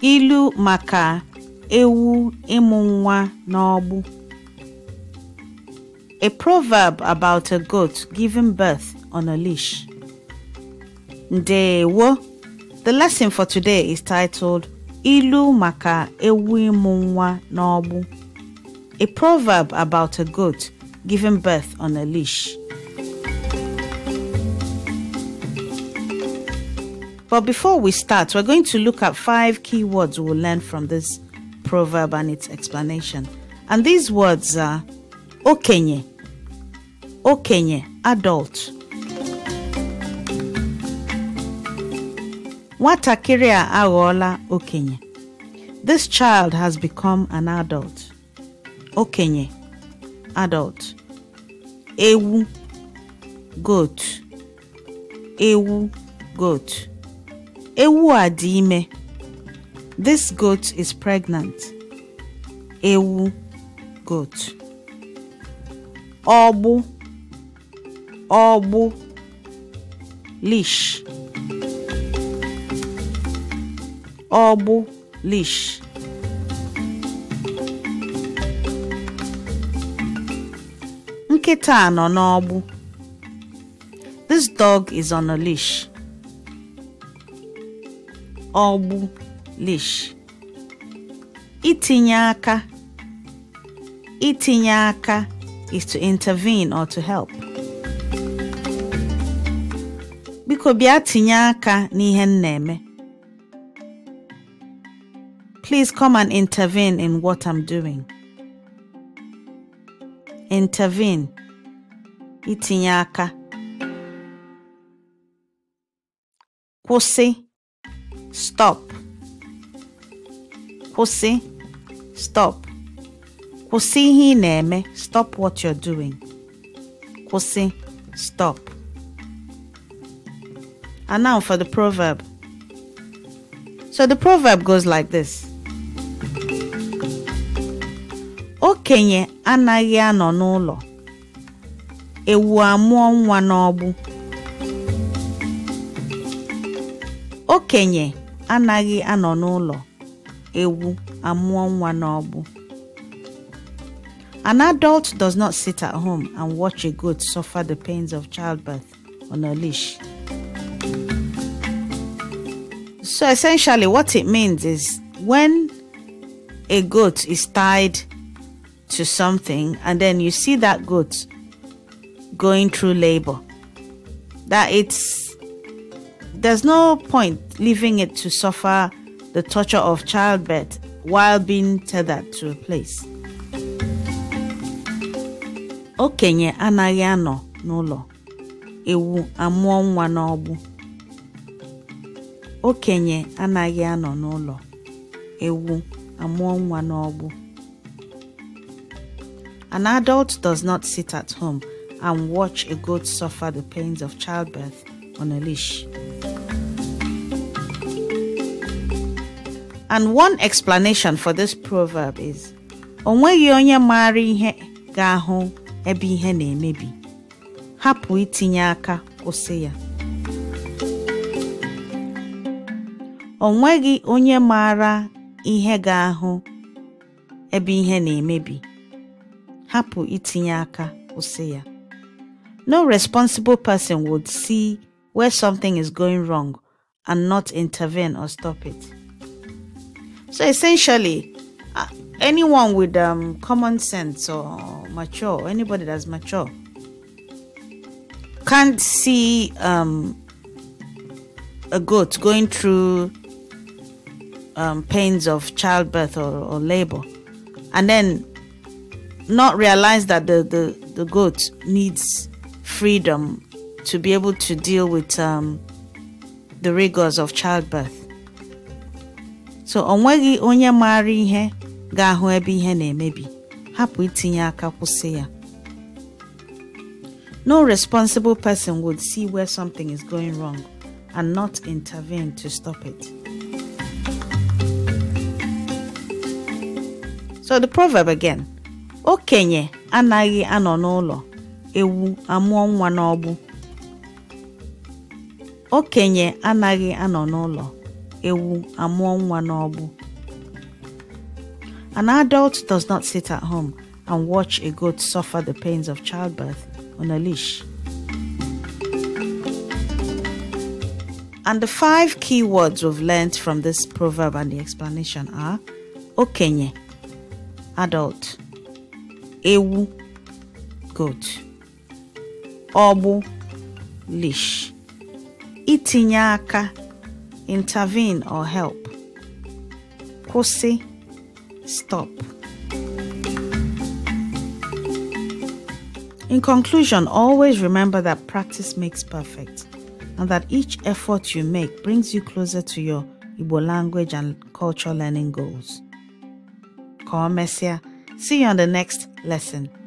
ilu maka ewu ịmụ nwa n'ọgbụ a proverb about a goat giving birth on a leash ndewo the lesson for today is titled ilu maka ewu ịmụ nwa n'ọgbụ a proverb about a goat giving birth on a leash But before we start, we're going to look at five key words we'll learn from this proverb and its explanation. And these words are okenye, okenye, adult. Watakiria awola okenye. This child has become an adult. Okenye, adult. Ewu, goat. Ewu, goat. Ewu a dị ime. This goat is pregnant. Ewu goat. Ọgbụ ọgbụ leash. Ọgbụ leash. Nkịta nọ n'ọgbụ. This dog is on a leash. ọgbụ leash itinye aka itinye aka is to intervene or to help biko bịa tinye aka n'ihe m na-eme please come and intervene in what I'm doing intervene itinye aka kwụsị stop. Kusi. stop. Kusi ihe i stop what you're doing. Kusi. stop. And now for the proverb. So the proverb goes like this. Okenye anaghị anọ n'ụlọ. Ewu amụọ nwa n'ọgbụ. Okenye anaghị anọ n'ụlọ ewu amụọ nwa n'ọgbụ An adult does not sit at home and watch a goat suffer the pains of childbirth on a leash. So essentially, what it means is when a goat is tied to something and then you see that goat going through labor, that it's there's no point leaving it to suffer the torture of childbirth while being tethered to a place. Okenye anaghị anọ n'ụlọ ewu amụọ nwa n'ọgbụ. Okenye anaghị anọ n'ụlọ ewu amụọ nwa n'ọgbụ. An adult does not sit at home and watch a goat suffer the pains of childbirth on a leash. And one explanation for this proverb is onweghị onye maara ihe ga-ahụ ebe ihe na-emebi. Hapụ itinye aka kwụsị ya. Onweghị onye maara ihe ga-ahụ ebe ihe na-emebi. Hapụ itinye aka kwụsị ya. No responsible person would see where something is going wrong and not intervene or stop it. So essentially, uh, anyone with um, common sense or mature, anybody that's mature, can't see um, a goat going through um, pains of childbirth or, or labor and then not realize that the, the, the goat needs freedom to be able to deal with um, the rigors of childbirth. so ọ nweghị onye maara ihe ga-ahụ ebe ihe na-emebi hapụ itinye aka kwụsị ya no responsible person would see where something is going wrong and not intervene to stop it. So the proverb again. Okenye anaghị anọ n'ụlọ, ewu amụọ nwa n'ọgbụ. Okenye anaghị anọ n'ụlọ, ewu amụọ nwa n'ọgbụ. An adult does not sit at home and watch a goat suffer the pains of childbirth on a leash. And the five key words we've learned from this proverb and the explanation are okenye, adult, ewu, goat, obu, leash, itinye aka, intervene or help. Kosi, stop. In conclusion, always remember that practice makes perfect and that each effort you make brings you closer to your Igbo language and culture learning goals. Call Messia. See you on the next lesson.